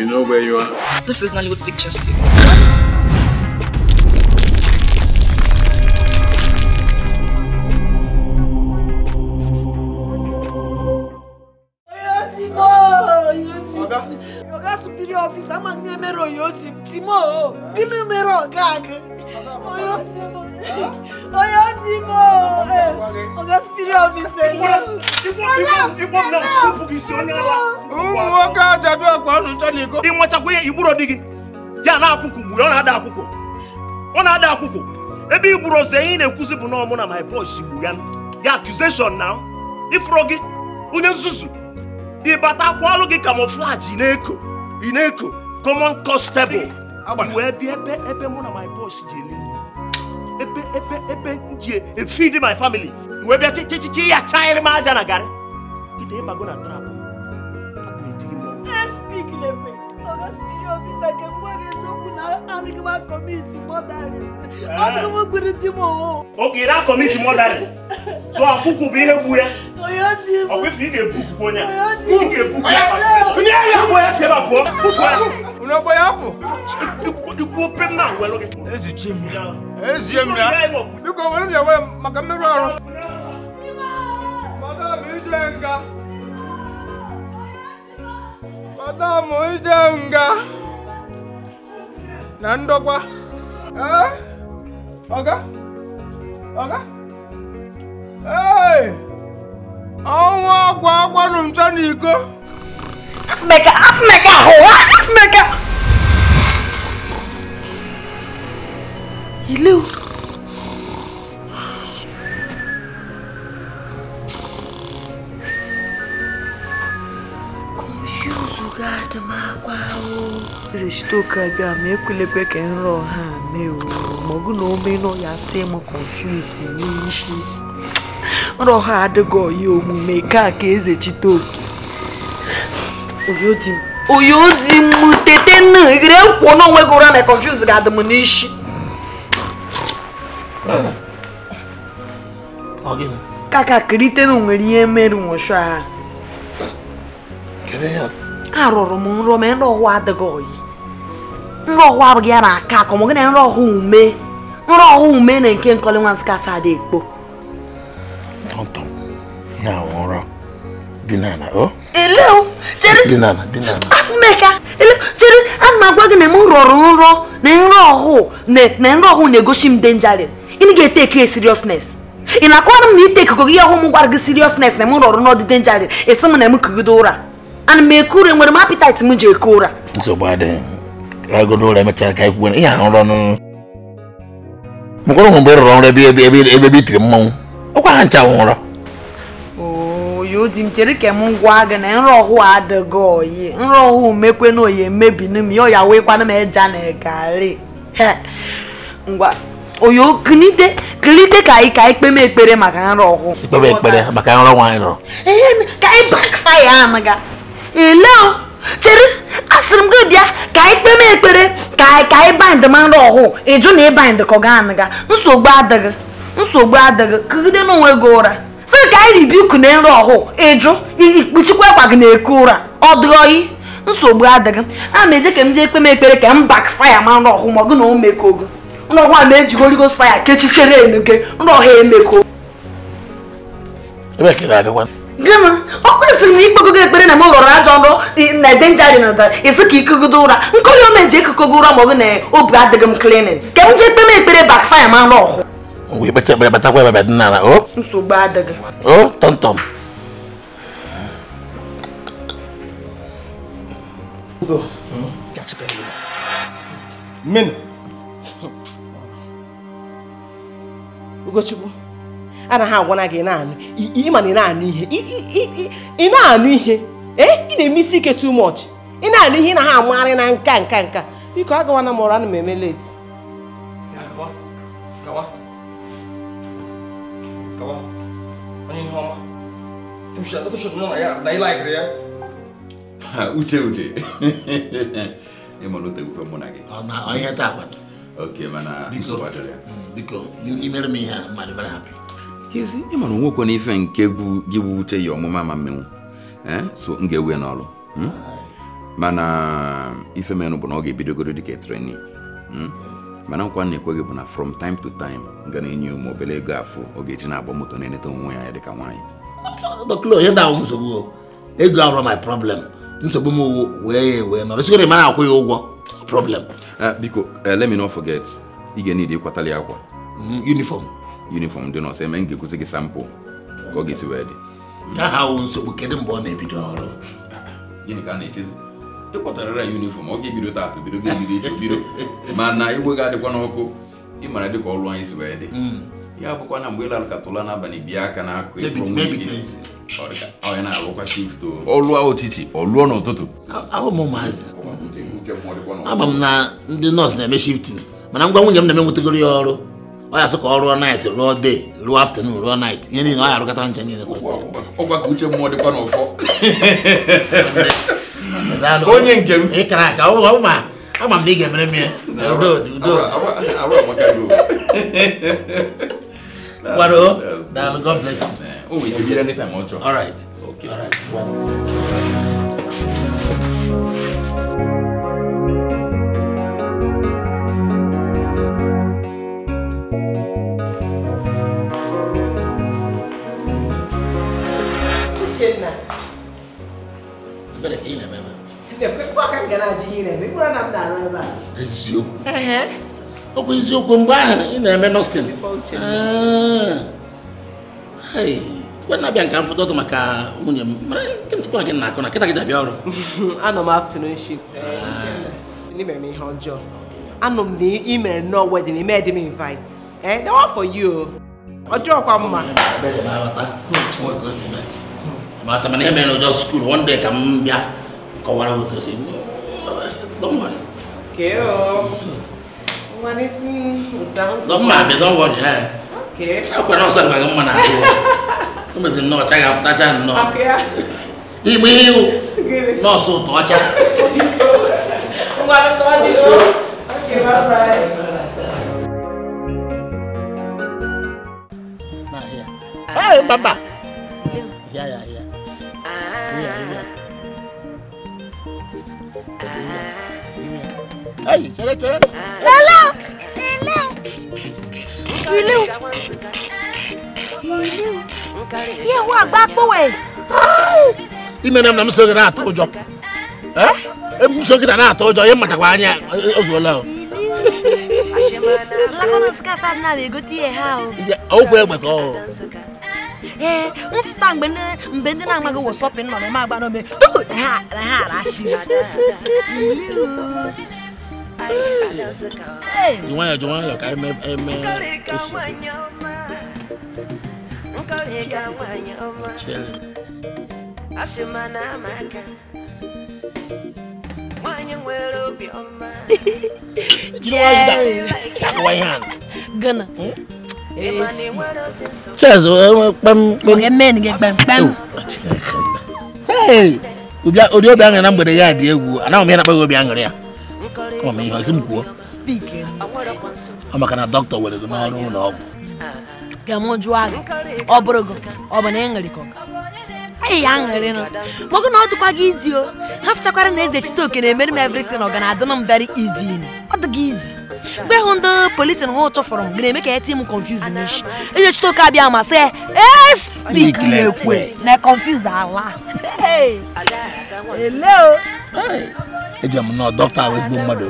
You know where you are? This is Nollywood Pictures TV. ọ̀gá superior officer máa ń gbé mẹ́rọ yóò Timo! mọ̀ ọ́ bínú mẹ́rọ ọ̀gá onye ojii m ogo spirit of na iko ịnwechakwa ihe igburo dị gị ya na akwụkwụ gburu ọ na-ada akwụkwụ ọ na-ada akwụkwụ ebe igburu ose ihe ị na-ekwuzi bụ na gburu ya ya na ifuro gị onye nzuzu ịbata akwa ọrụ gị camouflage na-eko ị na-eko common constable wee bịa ebe mụ na my boss ji ebe ebe ebe m ji efidi my family we wee bịa chichichi ya chanyere m aja na garị kịta ịbago na trap mboga sibiri ofisake mboga eziokwu na anụghị m akọmiti mọdarị ọnụghị m gbiri di m owo oge ire akọmiti mọdarị tụọ akwụkwụ bụ ihe gbu ya ọkwụfụ ị ga-ebupụ onye ị ga-ebupụ onye ahịa bụ ya si ebe pụọ pụtụ ya onye ya pụ ikwu ope mma ngwelụ gị ezichi m ya ezie m ya biko were m ya maka mmerụ ọrụ madam ije nga mới đâu na-amụje nga na ndọkwa ee ọga ọga ee ọnwa ọgwa agwanụ ncha n'iko afmeka afmeka hụwa hi ilu Chitoka bịa ma ekwulekwe ka nrọ ha mee ma ọ bụ na ome nọ ya tie m confuse n'isi nrọ ha adịghị ọya omume ka ka eze Chitoka oyodi m tete nna ire kwuo n'onwe gị ụra na confuse ga-adị m n'isi kakakịrịtenu nwere ihe mere nwụchụ ha arụrụ m nrọ ma nrọ ọwa adịghị ọyị nrọhụ abụghị ya na aka akọ mọgụ na nrọhụ ume nrọhụ ume na nke nkọli nwa nsụka sa adị ekpo ọtọ na ụra dinana chere dinana dinana afụmeka chere ana m agwa gị na m rọrọ nrọ na nrọhụ na nrọhụ na-egosi m denjari ị ga-ete ekiri seriousness ị na-akọwara m na ite ikuku gị ọhụụ m gwara gị seriousness na m rọrọ n'ọdị denjari esi m na m kugide ụra ana m eku ụra nwere m appetite m ji eku ụra nsogbu adịghị agụdo ụra emechara ka ihe ahụ rọ n'ụrụ mkwụrụ ụmụ mgbe rụrụ ọrụ ebe ebe ebe ebe itiri mmanwụ ọkwa ha ncha nwụrọ yodi gwa gị na nrọ oyi nrọ ọhụụ mekwe na oyi na ya ọya wekwana m eja na ngwa oyo kilite kilite ka anyị ka anyị kpeme ekpere maka nrọ ọhụụ ikpebe ekpere maka nrọ nwaanyị rọrọ ka anyị bakfaya ele chere asịrị m gị bịa ka anyị kpeme ekpere ka anyị ka anyị bind mmanụ ọhụụ ịjụ na ịbind ka ọ ga-anụ ga nsogbu adịghị nsogbu adịghị kugide n'onwe gị ụra sị ka anyị ribiku na nrọ ọhụụ ịjụ ikpuchikwa akwa gị na-eku ụra ọ dịghị oyi nsogbu adịghị a ma eje ka m jee kpeme ekpere ka m bak faya ma nrọ ọhụụ ma ọ gị na o mekogo nrọgwa ma ejigo rigos faya kechichere enu gị nrọ ha emeko gịnị ọkụ siri na ikpegogo ekpere na m ghọrọ ajọ nrọ na ede dị na isi ka ikogodo ụra nkụli ome ji ekokogo ụra ma ọ bụ na obi adịghị m klinin ka m ekpere bakfaya ma nrọ ọhụ Ugochukwu anaghị agwana gị na-anụ ịma na ị na-anụ ihe ị na-anụ ihe ee ị na-eme isi ike too much ị na-anụ ihe ị na ha amagharị na nka nka nka biko agawana m ọrụ ana m eme late uche uche ịmara otegwufe mụ na gị oke mana biko mm, imere m ihe a mmadụ very happy kezi ịmana onwekwe na ife nke gị bụ uche ya ọmụma ma mmenwụ so m ga-ewe n'ọrụ hmm? mana ife menụ bụ na ọ ga-ebidogoro dịka treni hmm? mana nkwa na-ekweghị bụ na from time to time ga na-enye ụmụ obere ego afọ ọ ga-eji na-agba moto na-eneta onwe ya dịka nwaanyị ego arọ my problem nsogbu m wee wee nọrọ sigoro ah, biko eh, let me not forget ị ga ịkwatali akwa hmm, uniform dị n'ọsọ eme m gị sampụ ka ọ ga-esi wee dị nsogbu kedụ mgbe ọ na-ebido ọrụ gịnị ka a na-echezi ịkpọtarara uniform ọ ga-ebido taatụ bido ga-ebido iche bido mana igwe ga-adịkwa n'ọkụ dị ka ọrụ anyị si wee dị hmm. ya bụkwa na mgbe n'abalị aka na shift ọlụọ n'ụtụtụ ama m na ndị nọọsụ na-eme shiftin mana ngwa nwunye m na-eme ọrụ ọ ya sị ka night rụọ day rụọ afternoon rụọ night ihe niile ọ ya arụkọta nche niile sọsọ ọgwa ka uche mmụọ dịkwa n'ụfọ onye nke m ịkara aka ọ bụ ma ama m na ị ga-emere m ya udo udo gbado daalụ god bless you. Oh, we can be anytime, All right. Okay. All right. ọ bụ eziokwu mgbe ahụ ị na-eme nọsin ah. kwe na-abịa nke maka nwunye m mara gị na-akụ na kịta gị ọrụ anọ m afternoon shift n'ime ah. m ihe ọjọọ anọ m na ime nnọọ wedin ime dị m invite eh that one for you ọ dịọkwa mma mata mana ihe mere ụjọ skuul one day ka m bịa Come on, what does it mean? Don't worry. Keo. What is it? Sounds Don't mind don't worry. Eh? Okay. How can I say I'm going to do? I'm going to check no. that channel. Okay. Ibu ibu. No, so to acha. Ngwana to acha. Okay, bye bye. Nah, ya. Hey, Baba. Ya, ya, ya. Hey, chere chere. Lala! Lala! Ilé o. Ilé o. Yé wo àgbà kówè. Ime nam na m sogide atọ ụjọ. Eh? M sogide na atọ ụjọ, ihe mmatakwa anya ozuola o. Lakọna sikasa dị na egote ihe ha o. Okwu egbe ka ọ. Ee, mfụta mgbe ndị mgbe ndị na-amaghị wọsọpịn nọ na eme agba n'ome. Ha ha ara achị. Jumaya jumaya ka eme eme. Ashimana maka. Mwanya nwere obi ọma. Jerry. Akwa ihe a. Gana. Chaz, kpam kpam. Oge men gị kpam kpam. Hey! Obi aṅụrị na mgbede ya dị egwu, anaghị m ya na-akpaghị obi aṅụrị ya. ọma ihe ọsị m kwuo ọ maka na dọkịta were gị n'ọrụ ụlọ ọgwụ ka m jụọ agha ọ bụrụ gị ọ bụ na ị ṅụrịkọ anyị ya ṅụrịnụ mọgụ na ọ dịkwa gị izi o ha fụchakwara na eze tite oke na-emere m evritin ọ ga na-adị m very easy ọ dị gị izi mgbe hụ ndị polisi na ụtụ fọrọ m ga-eme ka eti m confuse n'ishi eze chite oke abịa ma sị ekwe na confuse ala eji m na dọkịta ahụ ezigbo mmadụ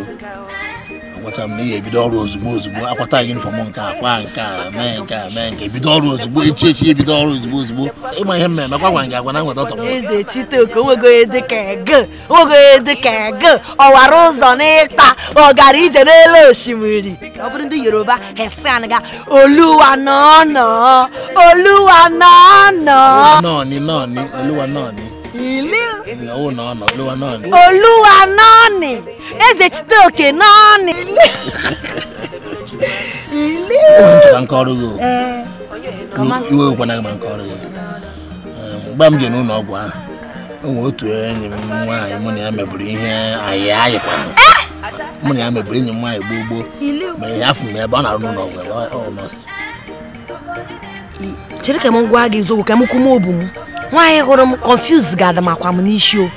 agwacha m na ihe ebido ọrụ ozugbo ozugbo akwata yunifọm nke a kwa nke a mee nke a mee nke ebido ọrụ ozugbo echi echi ebido ọrụ ozugbo ozugbo ịma ihe mmemme kwa gwa gị agwa na nweta ọtọ m eze chitoko nwego ya dị ka ego nwego ya dị ka ego e ọwara ụzọ n'ịta ọgara ije n'elu osimiri ọ bụrụ ndị yoruba hesan ga oluwa nọọnọ oluwa nọọnọ nọọnị nọọnị oluwa nọọnị ilu Oluwa nọọnị eze chite oke nọọnị mgbe m ji n'ụlọ ọgwụ ahụ onwe otu enyi nwaanyị mụ na ya mebiri ihe anyị anyị na ya mebiri enyi m nwaanyị gboo gboo mere ya afụ m ebe ọ na-arụ nwaanyị hụrụ m confuse ga-adamakwa m n'isi o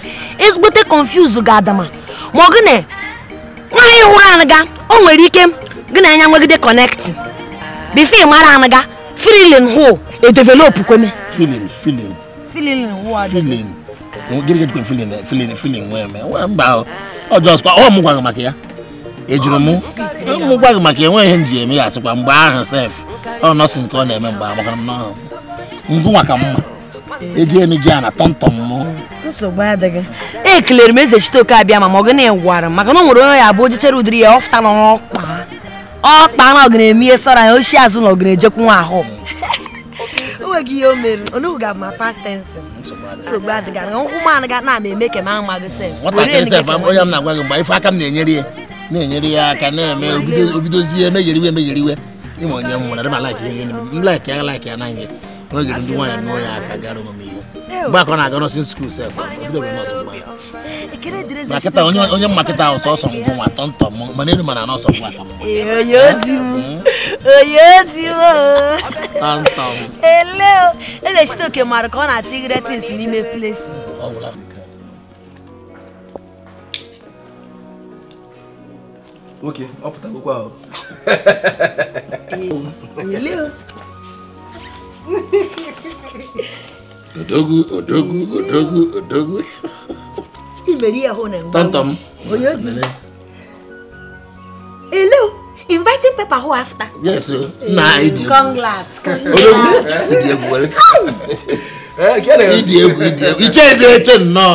ezigbote confuse ga-adama ma ọ gị nwaanyị hụrụ anaga o nwere ike gị na anya nwegide kọnekti bifo mara anaga filin hụ edevelopụ kweme filin filin filin filin ọ mụ gwaghị maka ya ejuru m mụ gwaghị maka enweghị ihe nji eme ya asịkwa mgbe ahụ sef ọ nọsị nke ọ na-eme mgbe amaka m n'ọhụ ngụnwa ka mma ejienu ji a na tọmtọm mụ nsogbu adịghị ekelere m eze chiteoke abịa ma ma ọ gị na-egwara m maka na ọ nwere onye ya bụ ojichere ụdịrị ya ọfụta n'ọkpa ọkpa na ọ na eme ihe sara ya oshi azụ na ọ na ejekwu nwa ahụ enweghị ihe o mere onugbu ga ma pastensi nsogbu adịghị nkwụ m anaghị na ama eme ka m amaghị sef nwatakịrị sef onye m na-agwa gị mgbe ife aka m na-enyere ya na-enyere ya aka na-eme obidozie emegheriwe emegheriwe ịma onye m nwere adịma laik ya laik ya na ihe no je ndu wanya no ya ka garo mo mi ba ko na ga no sin school self do mo so ba na keta onye onye maketa ọsọ ọsọ ngwụ nwa tọntọ m mana elu mana n'ọsọ ngwa onye odi m onye odi m tọntọ m ele eze site oke mara ka ọ na-atụ igre tins n'ime plesi nwoke ọ pụtagokwa ahụ odogwu odogwu odogwu odogu imere ya hụ na hello inviting paper who after yes o na ịdị congrats congrats ịdị egwu ịdị egwu ịdị egwu iche nnọọ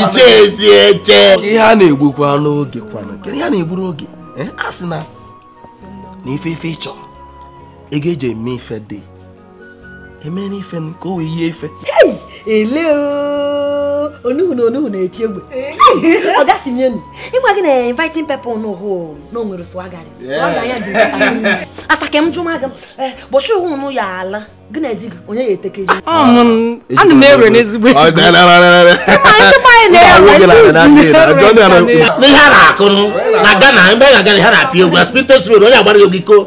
iche ezi eche ihe a na-egbukwa n'oge eh, na emeni fem ko iye ife. ele o onuhunu onuhunu eti egbe ọga si mie nu ịgwa gị na inviting people n'ụhụ na o nwere swagari swaga ya dị asa ka m jụ ma gị eh, bọchị ụhụ nụ ya ala gị na di gị onye ya eteke ji ana m ewere n'ezigbo n'ihe a na-akụrụ na Ghana ebe a na-aga na ha na-apịa egwu aspintes road onye agbara ya ogiko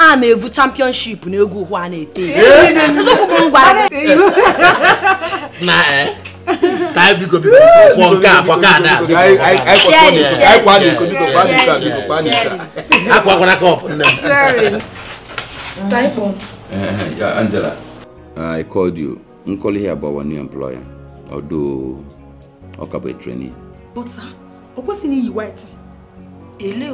a na-evu championship na egwu ụkwụ a na-ete Angela, I called you. I'm calling here about our new employer, although ọ ka bụ trainee. But sir, o kwesịghị iyi white. Ele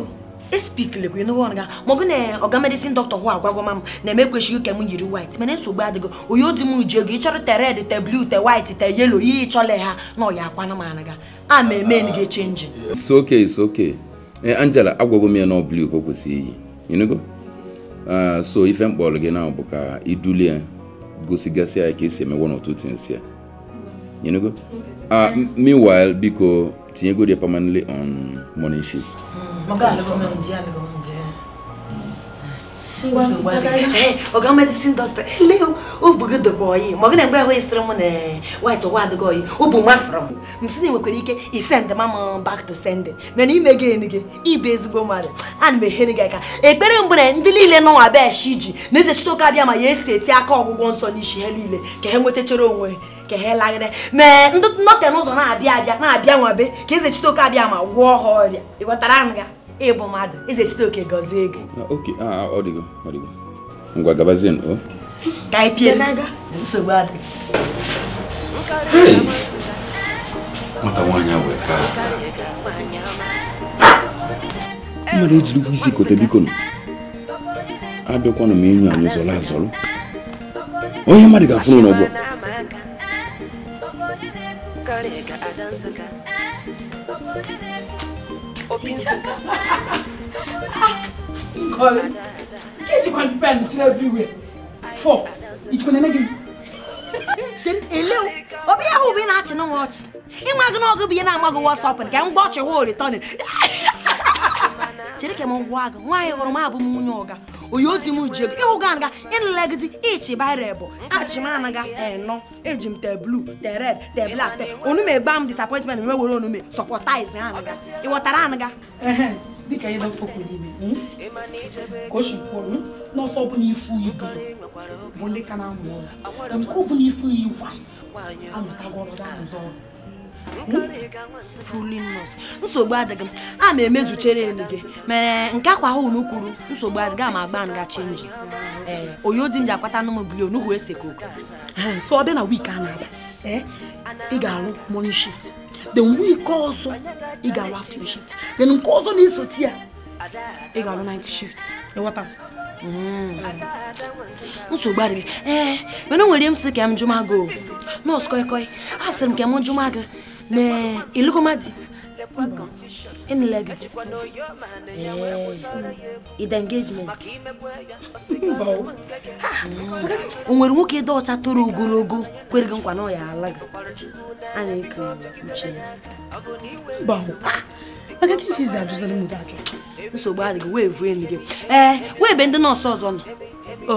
espikilekwa ịnụghị ọnụ ga na ọga medicine doctor hụ agwagwama m na-eme ekwechighị m yiri white mana nsogbu adịgo onye odi m ji ego ịchọrọ te red te blue te white te yellow ihe ịchọle ha na ọya akwanụ m anụ ga a na-eme enyi gị chenji Angela agwagwo m ya na blue ka o kwesịrị iyi ịnụgo so ife mkpọrọ gị na bụ ka idulie gosigasị ya ka esi emewe n'otu tins ya ịnụgo meanwhile biko tinyegodi permanently on morning shift Magalo, como un diálogo ọga medicine doctor ele obugdogyi ma ọ gana mgbe ahụ esiri m na white wadgoyi ụbụ nwa frọm m nwekwara ike isend mam back to sending mana ime gị enu gị ịbụ ezigbo mmadụ ana m ehere gị ekpere ndị niile n'ụwa bịa na eze chite ma ya esi eti aka ọgwụgwọ nsọ n'isi ha niile ka ha onwe ka n'ụzọ na-abịa abịa na-abịa nwabe ka eze ma ịbụ mmadụ eze site oke gọzie gị ngwa gabazie o ka anyị pie nsogbu adị nwata nwaanyị a wee kara nwere ejiri ụgwọ isi kote biko abịakwanụ m enyo anyị zọrọ azọrọ onye mmadụ ga-afụrụ n'ụgbọ Thank you. pencil. Nkọla, nke jikwa pen kyerɛ everywhere. Four, ijikwa na emegin. Jem elew, obi ahụ obi na-achị n'ụwa ọchị. Ịnwa gị n'ọgụ bụ ihe na-agba gị wọsọpụ nke mgbe ọchị hụ ritọnị. Chere ka m gwa gị, nwaanyị hụrụ m abụ m nwunye ọga oyoti m ji ego ịhụga anaga ịnlegidi ichibara bụ achimanaga enọ eji m te blu te red te blak te onume gba m disappointment nwe were onume sọpọtaiz anaga ịghọtara anaga dịka ihe okwu n'ime hmm? ka o si kwuo hmm? n'ọsọ ọbụla ifu ibu bụ ndị ka na-amụ ọrụ nke ọbụla ifu iyi wat anọtagwa ọrụ ga ọrụ nsogbu adịghị m a na-emezuchere elu gị mere nke akwa ahụ unu kwuru nsogbu adịghị ama agba nga chenji ee eh, oyo di m ji akwata anụ m bili onughu ese koko so ọ bịa na wiiki a na-abịa eh, ị ga-arụ morning shift then wiiki ọzọ ị ga-arụ afternoon shift then nke ọzọ na-esoti ya ị ga-arụ night shift ịghọta hmm. nsogbu adịghị ee eh, mana o nwere m sị ka m jụma nọọsụ kọịkọị a sịrị m ka m jụma gị ne ilukumati in legacy id engagement o nwere nwoke dị ọcha toro ogologo kwere gị nkwa na ọ ya ala gị a na-eke uche maka ka isizi ajụzara mụta ajụ nsogbu adịghị wee vuo elu gị ee wee be ndị nọọsụ ọzọ nọ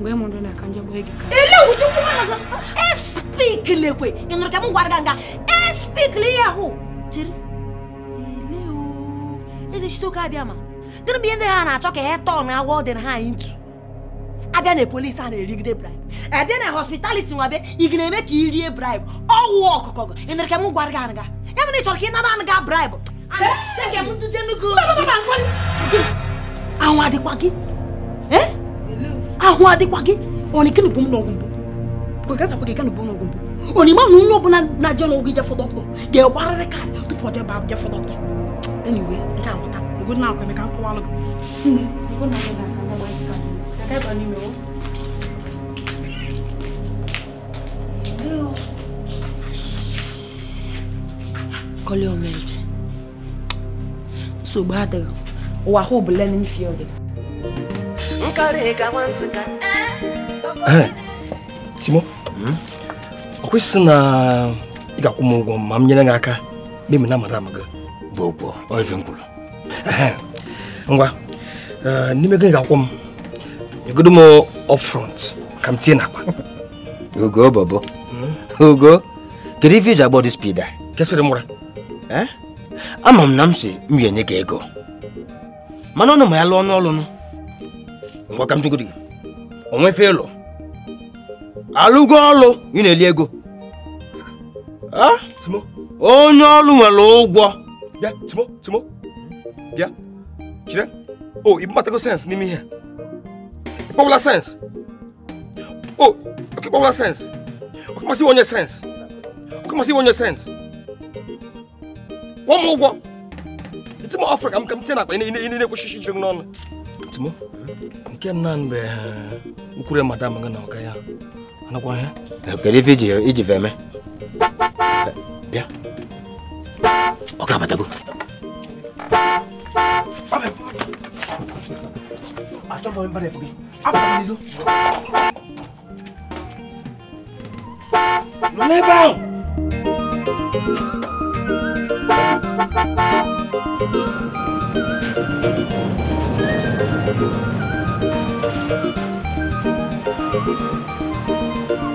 ngwe muntu nakhanje bwegika ile ukuthi ubona ka esikile kwe nginoke mungwarganga esikile yaho jiri leo eze shitoka abia ma diri bi ndị ha na-achọ ka ha tọọ na agwọ dị na ha ntu abịa na polisi a na-erigide bribe abịa na hospitality nwa o ị ga-eme ka ị rie bribe ọwụ ọkụkọ gị ịnere ka m gwara gị anaga ya bụ na ị chọrọ ka não. nara anaga que ahụ adịkwa gị ahụ adịkwa gị onike bụ m n'ọgwụ mbụ kwekasafụ gị gana bụ n'ọgwụ mbụ onima na onye ọbụla na-aje n'ọgwụ ije fọ dọkịta ga-egbarịrị kaadị tupu ọ debe abụje fọ dọkịta eniwe ị aghọta ogo na akwa emeka nkọwalụ gị kọlị omeje nsogbu adịghị ụwa ahụ bụ lenin field Eh, Timo ọ hmm? kwesịrị na ị ga-akwụ m ụgwọ ma m nyere gị aka m na madam gị bụ ọife m kwuru ngwa eh, n'ime gị ga-akwụ m nyegodo m upfront ka m n'akpa ogo bọbọ ogo hmm? kedu ife iji agbọ spida kesịrị m eh? ama m na m si m gị ego mana ọnụ ma ya lụọ ọnụ ọlụnụ mgbakamchukwu dị onwefe ịlụ alụgo ọlụ ị na-eli ego onye ọlụ nwere ụgwọ bịa timo timo bịa chire o ibubatago sensị n'ime ihe ịkpọwụla sensị o ịkpọwụla sensị ọkamasị onye sensị ọkamasị onye sensị kwụọ m ụgwọ ịtụmọ ọfra m ka m tinye na akpa ị na-ekwesịghị ijiri n'ọnụ o nke m na mgbe ukwure madam gị na ọga ya anakwa ihe eh? eh, o que eh, iji veme bịa ọ ga-abatago achọbụghị mbara efu gị abatanilo nọ n'ebe ahụ Thank you.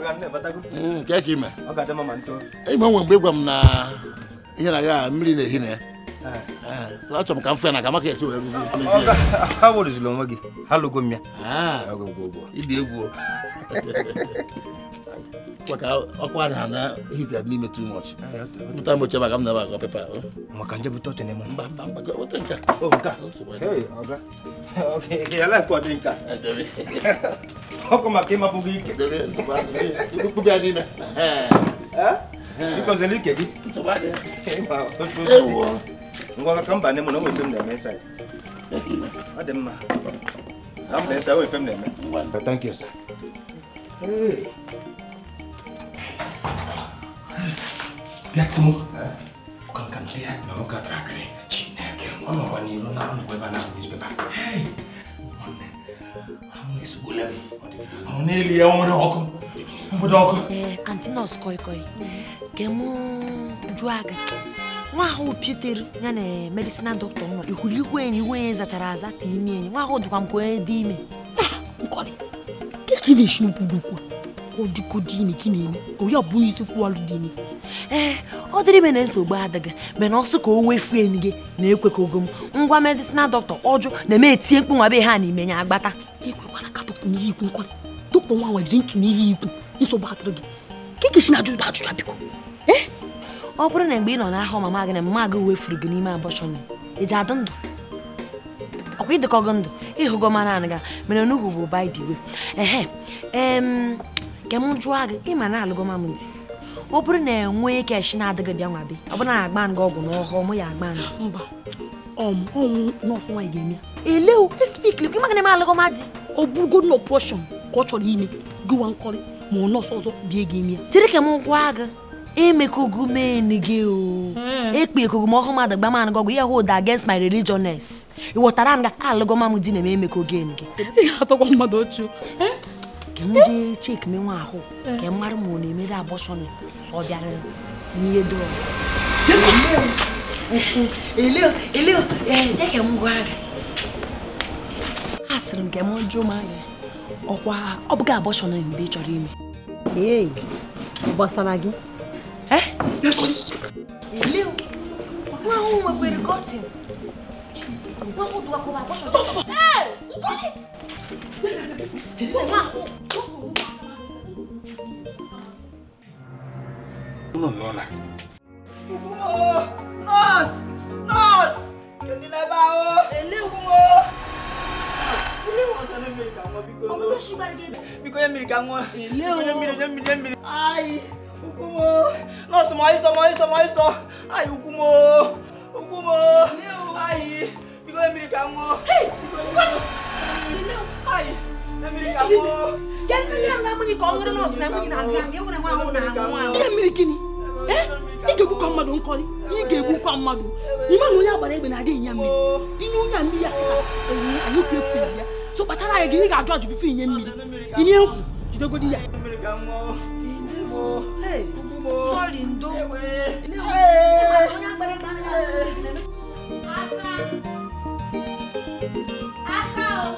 nke ka ime enwe mgbe ịgwa m na ihe na ya mmiri na-ehi na ya achọrọ m ka m fe na ka maka esi were ha gị ha lụgo m ya ibi egwu maka ọkwa anyị na na hita n'ime too much ah, pụta mgbe ochie maka m na-aba pepa maka nje bute oche n'ime mba mba mba weta nke ọkụ maka ịmapụ gị ike ikpukpe ya n'ime ịkọziri ike gị ngwa ka mba ne m na onwe m na-eme ịsa ọ dị mma na mba ịsa onwe m na-eme thank you sir bịa timo ụka nka ndị na ụka tarakịrị n'i na ọ nọkwa ebe a na antinọs aga nwa ahụ ya na medicinal doctor nọ ihulikwu enyi iwe ya zachara aza ka ime enyi nwa ahụ dịkwa m ka onye dị ime nkọrị kekideshimpugbukwu ụdịkụ dini gị na-eme ọbụghị isi ee ọ dịrị me na nsogbu adịghị mana ọsọ ka o wefu enyi gị na-ekwe ka ngwa medisinal dọktọ ọjụ na-eme etinye mkpụ nwa be ha ya agbata gị na ajụjụ ajụjụ biko eh? ọ bụrụ na mgbe ị nọ mama gị na mma gị wefuru gị n'ime ndụ ọkwa ịdịkọ gị ndụ bụ ka m jụọ gị ịma na alụgo m ntị ọ bụrụ na enwee keshi na-adịghị bịa nwa be ọ bụrụ na agba nga ọgwụ n'ọhụụ mụ ya agba nga mba um, ọnwụ nọọsụ nwaanyị ga-eme ele espikli gị maka na eme alụgo m adị ọ bụrụgo na ọpụrọshọn ka ọ chọrọ ime gịwa nkọrị ma ọ nọọsụ ọzọ bịa gị ime ya chere ka m gwa gị emekogo men gị o hmm. ekpe ekogo m ọhụụ mmadụ gba man gị ọgwụ ihe hold against my religiousness ị ghọtara nga alụgo m di na eme emeko gen gị ka m jee cheki menwe ahụ ka m ma ọ na-emere abọsọn sọ bịara n'ihe dọrọ a sịrị m ka m jụọ m anya ọkwa ọ bụghị abọsọn mgbe ị chọrọ ime ee gbasara gị nwa ahụ nwekwere kọtin What would I go back? What's your Hey! No, no, no. Nurse! Nurse! Kí lẹ bá o? Eléwu o! Eléwu ọ̀sán ní mìíràn wọn bí kò lọ. Ọmọ tó ṣùgbọ́n àdìgẹ́. Bí kò yẹ mìíràn wọn. Eléwu. Bí kò yẹ mìíràn yẹ mìíràn yẹ mìíràn. Ayi! Ukumo! Nọ́ọ̀sì mọ̀ ayísọ mọ̀ ayísọ mọ̀ ayísọ. Ayi Ukumo! Ukumo! Ayi! Because America mo. Hey, Hai, America mo. Yan na yan na muni kongre nos na muni na ngang. Yan na mo na mo. America ni. Eh? Ige gu kwa madu nkori. Ige gu kwa madu. Ni ma nunya bare be na de nyam ni. Inu nyam ni ya. Eyi, anyi pie pie ya. So pa chara ye gi ga judge bi fi nyam mi. Ini enku. Jide godi ya. America mo. Hey. Sorry ndo. Hey. Hey. Asa.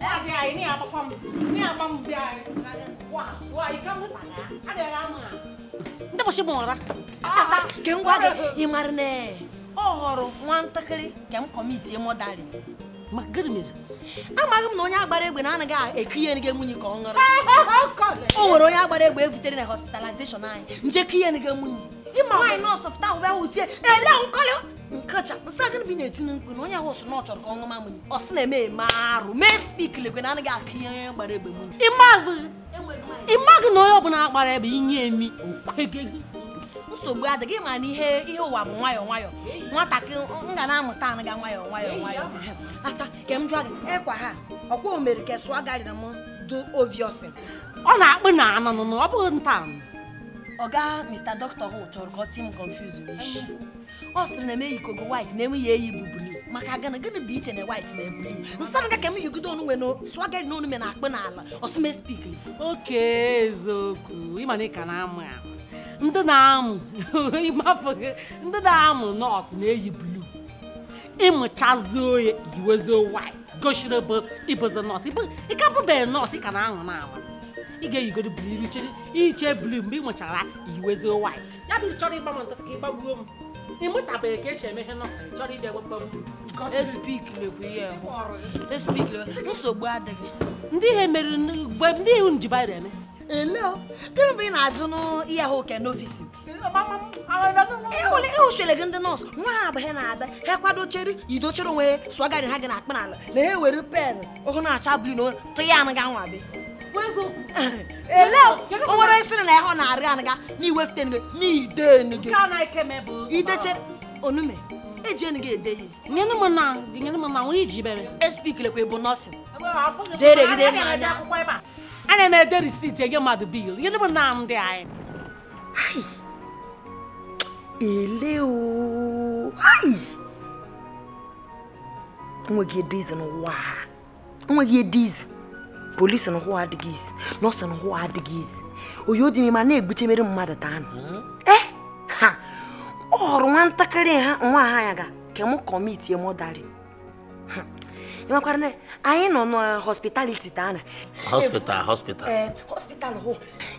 Ada ini apa kom? Ini apa muda? Wah, wah ikan lu tanya. Ada lama. Nta pasti ah, ah. Oh, mau ora. Asa, geng gua ge imarne. Oh, horo, nwantakiri, gem komiti mo dali. Magirmir. Amaghị m na onye agbara egbe na anaghị eki ihe nige nwunye ka ọ ṅụrụ. O nwere onye agbara egbe evutere na hospitalization anyị. Nje ka ihe nige nwunye. Nwaanyị nọọsụ fụta ahụ bịa hụ tie, ele nkọlị nkachapụ sa bi bụ ị na-etinye mkpu na onye ahụ sụ na ọ chọrọ ka ọ ṅụma ọ sị na-eme eme arụ mee spik lekwe na anaghị akụ ihe gbara egbe mmiri ịmaghị na onye ọbụla akpara ebe inye emi okwege gị nsogbu adịghị ma na ihe ihe ụwa bụ nwayọ nwayọ nwatakịrị m ga na-amụta anaga nwayọ. nwayọọ nwayọọ asa ka m jụọ gị ekwa ha ọkwa omere kesụọ garịrị m dị oviosi ọ na akpụ na anụnụ ọ bụghị nta oga Mr. Doctor Who chọrọ ka ọ tie confuse n'isi ọ sịrị na emeghị kogo white na enweghị eyi bụ blue maka gana gịnị dị iche na white na blue nsara ga ka m yigide na swagari na onume na akpị n'ala ọsụme spik oke eziokwu ịmana ka na-amụ ya ndị na-amụ ndị na-amụ nọọsụ eyi blu ịmụchazuo ya na-aṅụ na ị ga-eyigodo buru iche blu mgbe ị nwechara iwezie white ya bụ chọrọ ịgbanwe ntụtụ ka ịgbagbuo m ịmụtabeghị ka esi eme ihe nọsịn chọrọ ịbịa gbagbagburu m Ele, gịnị e mgbe ị na-ajụ n'ihe ahụ ke n'ofisi e e gị ndị nọọsụ nwa ha abụghị na-ada ha kwadochere idochere onwe ya ha gị na akpa n'ala na ha ewere pen ọhụrụ na-acha blu na tụya anụ gị anwa ele o nwere sịrị na ịhụ na-arị anaga na iwefute ngo ideche onume eji enu gị ede ihe espikilekwa e bụ nọsịn ana m ede risit enye mmadụ bil nyere m na ndị anyị e. ele enweghị edizi n'ụwa enweghị edizi polícia não ụhụ adịghị isi nọọsụ na ụhụ o dị é a na é mere mmadụ taa nụ ee ha ọ hụrụ nwa ntakịrị ha nwa ha ya ga e m kọmitie mọdarị hmm. ịmakwara na anyị nọ n'hospitality taa na hospital hospital eh, hospital hụ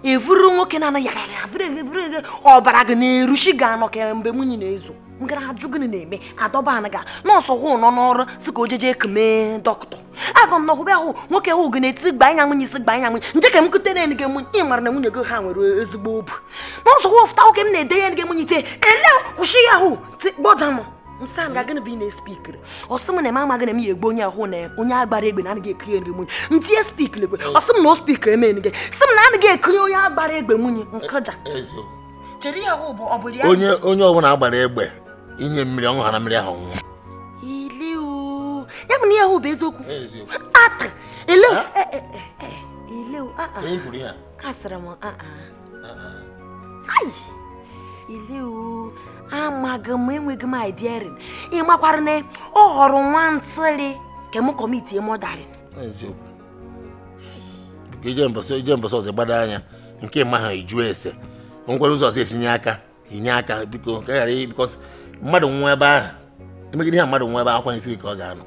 e nwoke na na na-ezo aga m na ahụ nwoke ahụ ga-eti gba anya nwunye isi gba anya nwunye nje ka m kute na enige ị mara na nwunye gị ha nwere ezigbo obu na ụzọ wọfụta nwoke m na-ede ya enige nwunye ite ele kwụsị ya ahụ gbọja m nsam ga gịnị bụ ị na-espikiri ọsị m na eme amaghị na m ya egbu onye ahụ na onye agbara egbe na anaghị ekiri enige nwunye m tinye spikiri egbe ọsị m na o spikiri eme enige sị m na anaghị ekiri onye agbara egbe nwunye nkọja e, e, e, onye ọbụla agbara egbe inye mmiri ọṅụ ha na mmiri ahụ ọṅụṅụ ịhụna ihe ahụ bụ eziokwu ata eleu eleu asịrị m eleu amaghị m enweghị m idrin ịmakwara na ọ họrọ nwa ntịrị ka m o mọdarị ije mbọsị ọzọ gbada anya nke ma ha eju ese ngwere ụzọ ọzọ etinye aka inye aka biko ka ghara bikọs mmadụ nwa ebe ahụ emegide ihe mmadụ nwa ebe akwanyesighị ka ọ ga-anọ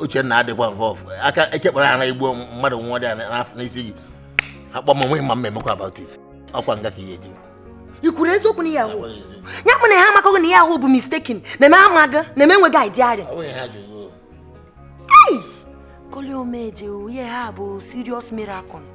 Uchenna adịkwa mfe ọfụ aka ekekpara ara igbo mmadụ nwa dị n'afọ n'isi gị akpọ m nweghị ma m emekwa about it ọkwa nga ka ihe eji i kwuru eziokwu na ya ahụ ya kpụ na ha amakọghị na ya ahụ bụ mistaken na-eme amaga na-eme enweghị idearịa koli omeje ihe ha bụ serious miracle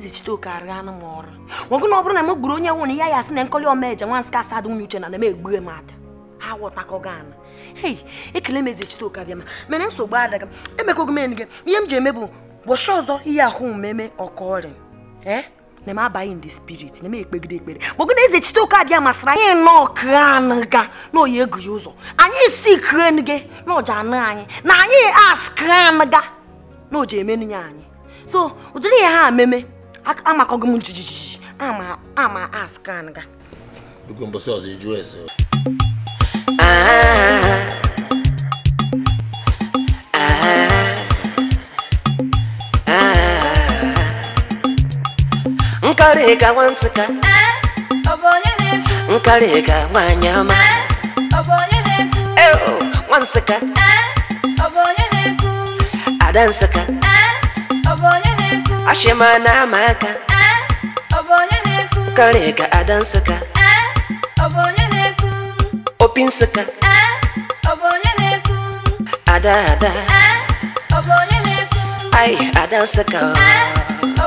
zichitoke arịanụ m ọrụ nwoke na ọ bụrụ na m gburu onye nwụ na ya ya sị na nkoli omeje nwa nsị ka asadụ nwunye uche na na-eme egbughị m ata ha ghọtakọghị ana hei ekele m ezichite ụka bịa ma mana nsogbu adaga emekwago m enyi gị ihe m ji eme bụ gbọchi ọzọ ihe ahụ mmeme ọkọ ọrịa ee m abaghị ndị spirit na m ekpegide ekpere gbọgo na eze chite ụka bịa masịrị anyị nọọ kranụga na oyi egụghị ụzọ anyị si kranụge na ọja anụ anyị na anyị as kranụga na oji emenụ ya anyị so ụdịrị ihe ha ememe amakọgo m jijiji ama ama as kranụga oge mbọsị ọzọ ejuo ese nkaleka wanseka nkaleka mwanyama wanseka adanseka ashema n'amaka nkaleka adanseka opi nseka eh, ada ada eh, Ay, adansika. Eh,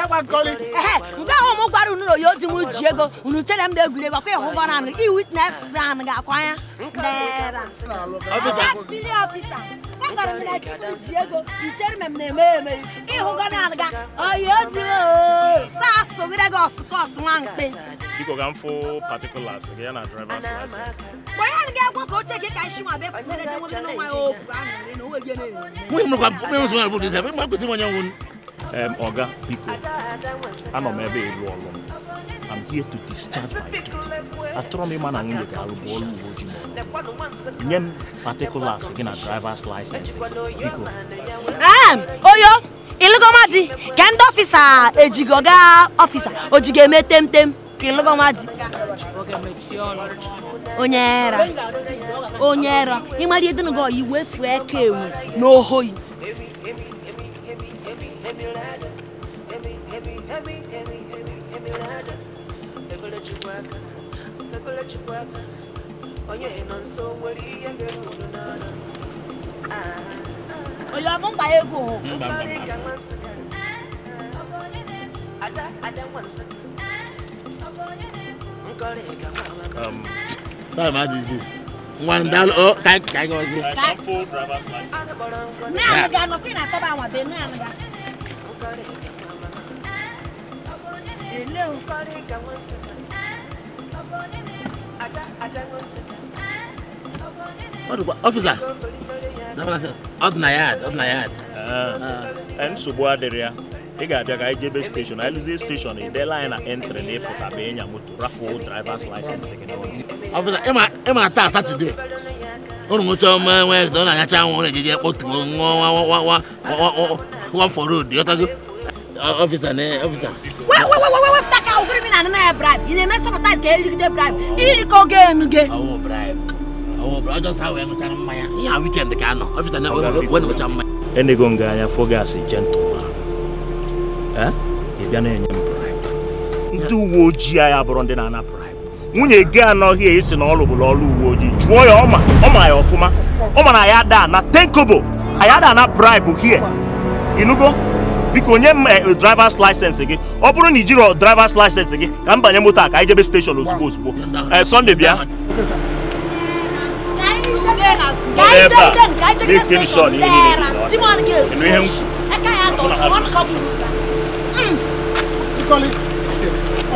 ekwa nkoli nke ahụ mụ gwara unu na oyi ozi m ji ego unu chere m na-egwuri egwu akwa ịhụ gọna anụ i witness anụ ga-akwa ya naira spiri ọfisa agara m na ji m ji ego ichere m na-eme eme ịhụ gọna anụ ga oyi ozi sasụ gịre gị ọsụkọs nwa mkpe biko ka m fụ particulars gị ya na drivers license mgbe ya ga egwo ka oche gị ka isi nwa befu nne jewe n'ụwa ya okwu ahụ nwere na onwe gị na-eme um, Oga Biko, anọ m ebe ịlụ ọlụ m. I'm here to discharge my duty. Achọrọ m ịma na nwunye ga-alụ bụ ọrụ uwe ojii n'ọrụ. Nye m particulars gị na driver's license biko. Ah, Oyo, ịlụgọma di ka ndị ọfịsa ejigo gaa ọfịsa ojigo eme temtem ka ịlụgọma di. Onye era, onye era, ịmara ihe dịnụgo iwe fuo eke ewu n'ohoyi. emulada emi emi emi emi emi emulada ebele chikwaka ebele chikwaka onye nọ nso nwere ihe mere unu n'ọnụ onye ọ bụ mkpa ego ada ada nwa nsọ nkọrị ga nwa ama one um, dollar. oh kai kai gozi kai full driver's license na ga no kwina ko ba wa be na na kọrị ele nkọrị ka nwesịka ọfisa nsogbu adịrị ya ị ga-abịa ka anyị jebe anyị lụzie anyị na entri na ịpụta bụ ịnya moto rapụ drivers license gị ọfisa ị ma satọde ụrụ nwụcha ọma Wenesde ọ na-anyacha anwụ ọ na-ejeje nwa nwa nwa nwa nwa ọfịsa na ọfịsa wepụta ka e na-anana ka enego nga anya fogas gentleman eh? ị bịa na-enye m bribe ndị uwe ojii anyị bụrụ ndị na-ana bribe nwunye gị anọghị esi na ọ lụbụrụ ọrụ uwe ojii jụọ ya ọma ọma ya ọfụma ọma na ya daa na tenkobo anyị ada na bribe hie ịnụgo biko onye m drivers license gị ọ bụrụ na i jiri drivers license gị ka m banye moto a ka anyị jebe steshọn ozugbo ozugbo Sunday bịa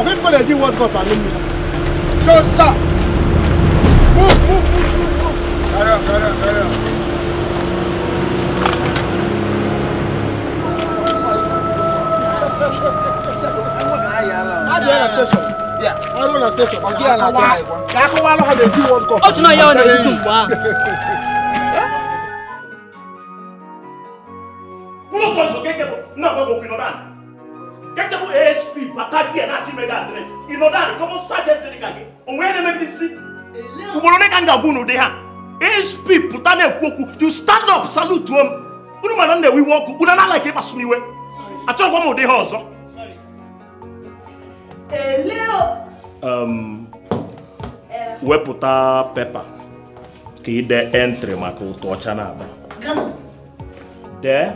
Ọ̀gbẹ́ni kọ́lẹ̀ jí wọ́ọ̀dù gọ̀ọ̀pá lómi. Don't stop. Move, move, move, move, move. Carry on, carry on, carry on. Adi ala station. Yeah. Adi ala station. Adi ala station. Kakọ wa lọkọ dey do one cup. Ó tún náà yẹ ọ̀nà ìsúsù wá. Kúrò kan sọ kékeré náà bọ̀ bọ̀ pinnu náà. Kékeré ASP bàtà díẹ̀. achimega adres ịnọdụ kọmọnsa jemtịrị ka gị onwe ya na-emebi ugboro ole ka m ga-agwa unu ha asp pụta na-ekwu okwu you stand up salute m unu mana m na-ewe iwe ọkụ unu na-ala ka ịkpasu m iwe ụdị ha ọzọ wepụta pepa ka ide entri maka ụtụ ọcha na-aba dee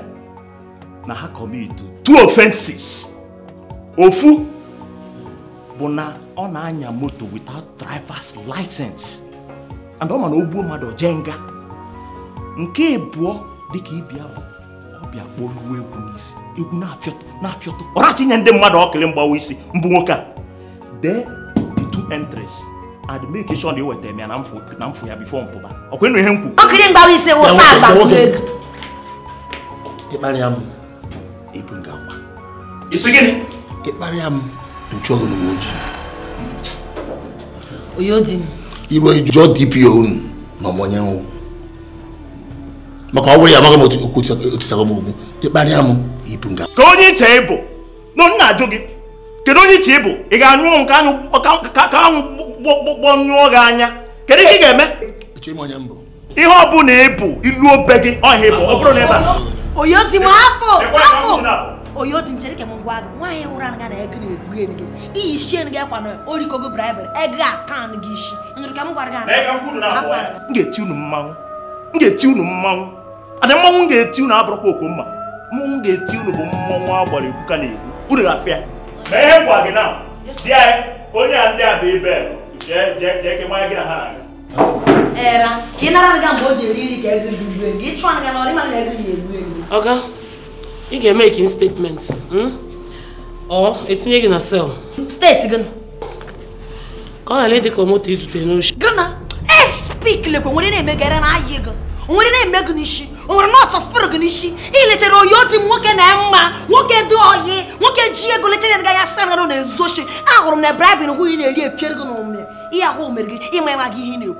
na ha kọmitu two offenses ofu bụ na ọ na-anya moto without driver's license and ọ ma na ogbuo mmadụ jee nga nke abụọ dịka ịbịa bụ ọbịa kpọruo egwu n'isi egwu na-afịọtụ na-afịọtụ ọrachi nye ndị mmadụ ọkịlị mgbawa isi mbụ nwoke a dee the two entries and make sure na eweta ya na mfụ ya bifo mpụba ịnụ ihe m ọkịlị mgbawa isi wụsa agbakwụ egwu ịkparịa m ibu ngakwa isi gịnị ịkparịa m nchụ ọgụ n'uwe ojii oyo di m iro jụọ dpo unu na ọmọnye nwụ maka ọ bụrụ ya amaghị m okwu otisago m ogwu ịkparịa m ibu nga ka onye iche ịbụ na nna ajụ gị kedu onye iche ị ga-anyụ ka anwụ gbọgbọ nyụọ gị anya kedu ihe ị ga-eme ihe ọ bụla ịbụ ilu obe gị ọhịa bụ ọ bụrụ na ebe a oyo di m afọ afọ oyoti nchereke m gwa gị nwaanyị ụra anya na ego na-egbu ego iyi shien gị akwa na orikogo braịbụl ego akan gị isi nyụrụ ka m gwara gị ga-eti unu mmanwụ m ga-eti unu mmanwụ ada mmanwụ m ga-eti unu abụrụkwa mma mmanwụ ga-eti unu bụ mmanwụ egwu ka na-egwu unu gwa gị na anyị e. onye a ndị a bụ jee gị na ha na ka ị nara mgbe o ji eri nri ka ego gị gbuo ịchụ na na ego ị ga-eme ka statement ọ hmm? etinye gị na sel steeti gị ka ọ ghara ịdị ka moto izute n'oshi gịna espik nwere na-emegara na gị e nwere na-eme gị n'isi gị n'isi iletara oyi nwoke na mma nwoke dị oyi nwoke ji ego letara ya ya sanara na ezuoshi ahụrụ m na bribin hụ ị na-eri epiere ihe ahụ gị ịma ịma gị ị na-ekwu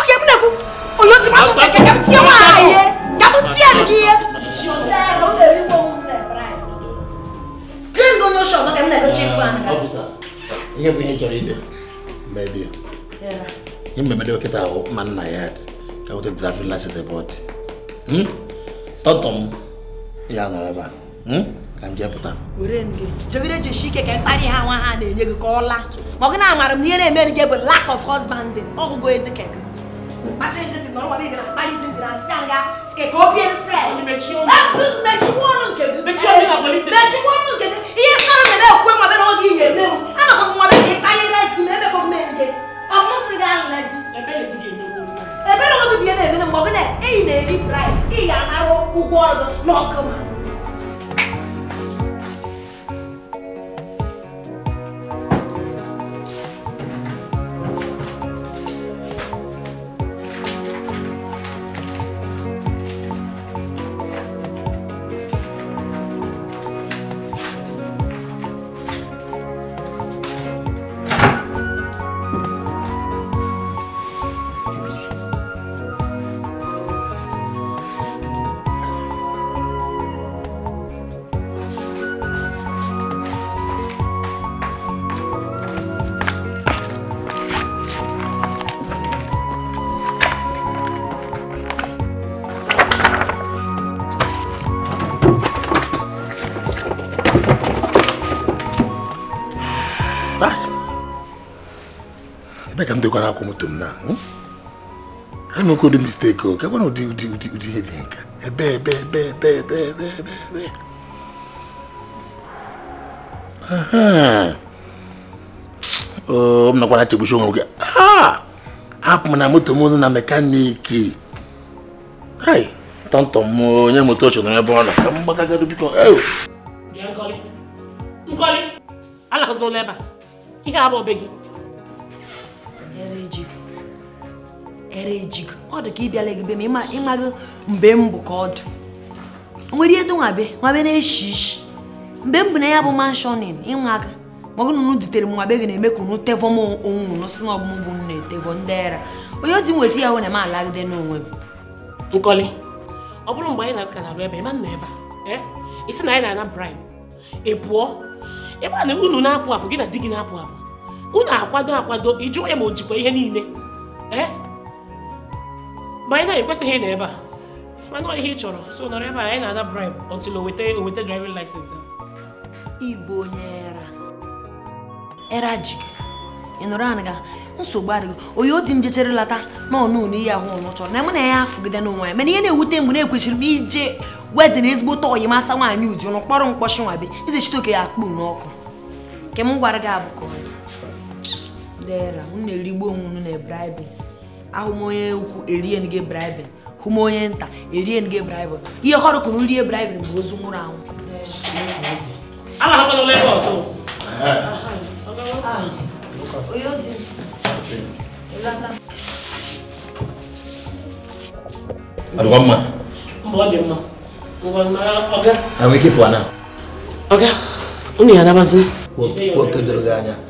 oke m na-ekwu oyi m akụkọ nwaanyị gị ihe n'o ihe bụ ihe chọrọ ide mebie ihe mmemede kịta ahụ mma nna ya ka nweta drafin lasit bọd tọtọ m ya nọrọ ebe a ka m were pụta jogide jisi ike ka mkparị ha nwa ha na-enye gị ka ọ laa ma ọ gị na-amara m na ihe na-emeri gị bụ lack of husband ọhụgo edukek Pacienteți-vă, adică romanii, pariți-mi din aseanga, scă copiii în seara. Meci oameni. Meci oameni. Meci oameni. Meci oameni. Meci oameni. ka m dekwara akwụ moto m na hmm? anụkwu ụdị o gakwana ụdị ụdị ụdị ụdị ihe dị nka ebe ebe ebe ebe ebe ebe ebe ebe m nakwara chegbuchi onwe gị ah! hapụ m na moto m na mekaniki tọntọ m onye moto ochọ ebe ọ na ka m gbakagado biko a ihe gị ere ọ dị ka ị bịala gị be ma ịmaghị mgbe m bụ ka ọ dị nwere ihe nwabe nwabe na-eshi ishi mgbe m bụ na ya bụ manshọnin ịnwa aka maọbụ na unu dutere m nwabe gị na-eme ka unu tevọm onwe unu si na ọgbụmgbụ m na-etevọ ndị era onye dị nweta ya hụ alagide n'onwe m bụrụ na na-arụ ebe ịma ebe a na anyị na-ana na unu na na di gị na-apụ apụ unu akwado akwado ijụ ya ma o jikwa ihe niile eh? ma anyị na-ekwesịghị na ebe a mana ihe ị chọrọ so nọrọ ebe a anyị na-ana bribe until o weta o weta driving license igbo onye era era ji ị nọrọ anị nsogbu adịghị onye odi m jechere lata na ọ na ihe ahụ ọnụ chọrọ na mụ na ya afụgide n'onwe ya mana ihe na-ewute mgbe na-ekwesịrị m ije wedịn ezigbo tọ oyi masa nwaanyị ụdị ụnụ kpọrọ mkpọchi nwabe ize chite oke ya akpụ n'ọkụ nke m gwara gị abụkọ dera unu na-erigbu onwe unu na bribe ahụm onye ukwu erie gị bribe hụ m onye nta erien gị bribe ihe họrụ kụrụ rie bribe bụ ozu nwụrụ anwụ ike pụọ na unu ya anabazi anya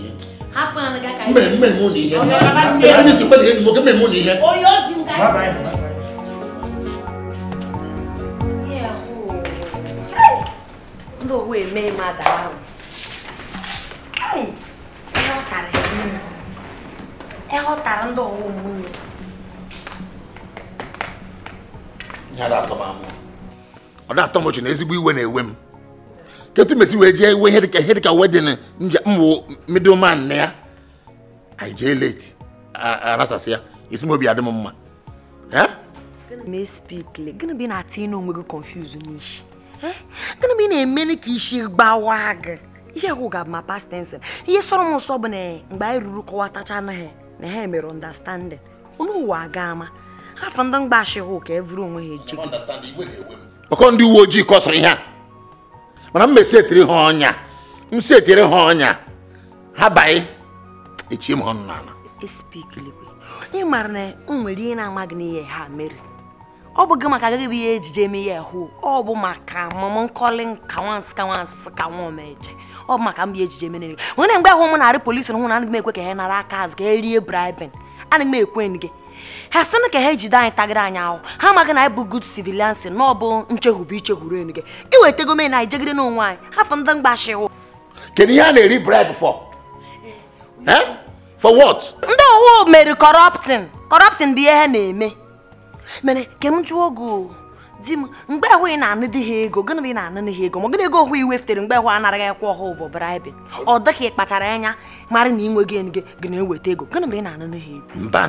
hafana ga ka mme mme mo ni ye ani si pele mo ke mme mo ni ye o yo ti nka bye bye yeah o oh. ndo we me ma da ha ai ẹ ghọtara ẹ ghọtara ndị ọwa ụmụnne ọ da-atọ m amụ ọ da-atọ m ọchị na ezigbo iwe na-ewe m ketu mesi wee jee iwe ihe dịka ihe dịka wedin mwụ middleman na ya anyị jee late arasasị ya isi m obi adị m mma gịnị bụ ị na-atị inu onwe gị confuse n'ishi gịnị bụ ị na-emeni ka isi gbawa gị ihe ahụ ga ma past tense ihe sọrọ m nsọ bụ na mgbe anyị ruru kọwa anaghị na ha mere understanding onye ụwa aga ama afọ ndị mgbashi hụ ka evuru onwe ha eji ọkọ ndị uwe ojii kọsịrị ihe a mana m mesetiri ha ọnya m setiri ha ọnya ha baị echi m ọnụ n'ala e ị maara na m nwere ihe na-amaghị n'ihe ha mere ọ bụghị maka agaghị bụ ihe ejije eme ihe hụ ọ bụ maka mụmụ nkọli nka nwansị ka nwansị ka nwa meje ọ bụ maka m bụ ejije mere nwere mgbe ahụ m narị polisi hụ na anaghị m ekwe ka ha nara aka azụ ka e rie bribin anaghị m ekwe gị ha sịnụ ka ha ejide anyị tagara anyị ahụ ha amaghị na anyị bụ good civilians na ọ bụ nchekwube ichekwuru enu gị iwetego men anyị jegide n'onwe anyị hafụ ndị mgbashiwụ kedu ihe a na-eri bribe for eh, eh? for what ndị owu mere kọrọptin corrupting bụ ihe ha na-eme mere ka m jụọ oge di m mgbe ahụ ị na-anụ di ha ego gịnị bụ ị na-anụ ha ego ma gịnị ego iwe fitere mgbe ahụ anaghị ekwe ọhụụ bụ bribe ọ dịka ị kpachara anya mara na inwe gị enu gị na-eweta ego gịnị bụ ị na-anụ n'ihe ego mba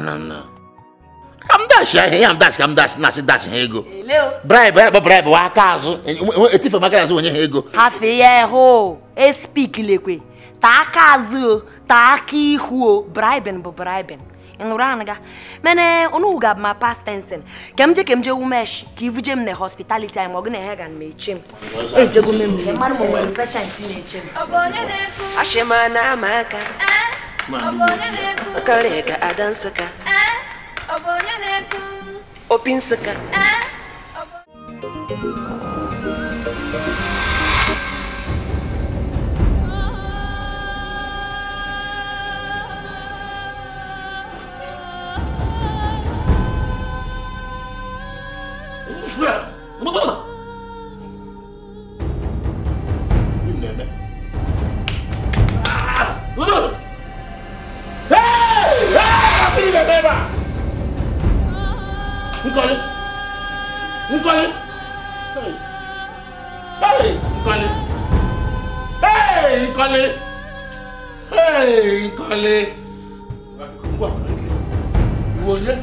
Shaheen am das kam das nas das rego. Leu? Brebo, brebo, brebo, acaso. Eu tive uma casa onde rego. Rafael, explique-lhe que. Tá acaso, tá aqui ruo. Braiben, bo braiben. Enuranga. Mene, onu ugab ma past tense. Kemje kemje umesh, ki vujem ne hospitality am ogne hegan me chim. E jego mem ne man mo wel patient ne chim. Obonye de ku. Ashema na maka. Eh? Obonye de ku. Kareka adansaka. Eh? Opin sıkı. Ah! Hey! Hey! Filha, beba! Nkọ́lé Nkọ́lé hey Nkọ́lé hey Nkọ́lé hey Nkọ́lé ìwọ yẹ.